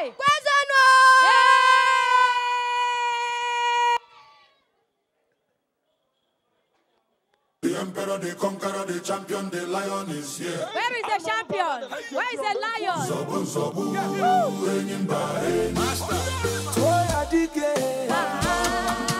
Kwezano! The emperor, the conqueror, the champion, the lion is here. Where is the champion? Where is the lion? yeah. Master. Toya dike. Ah.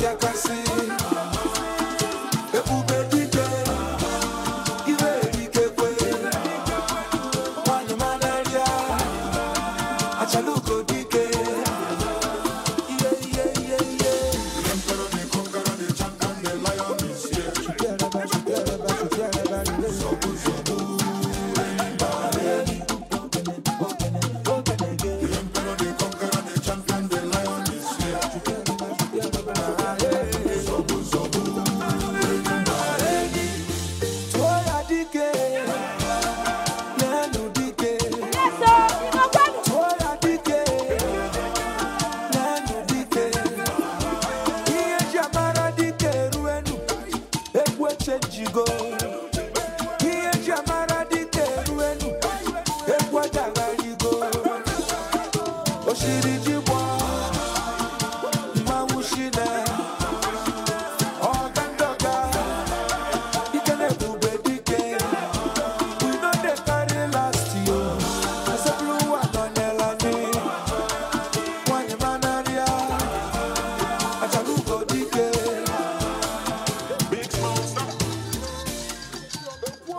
So good.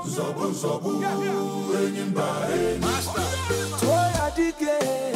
Zobu zobu Enyimba enyimba Toya dike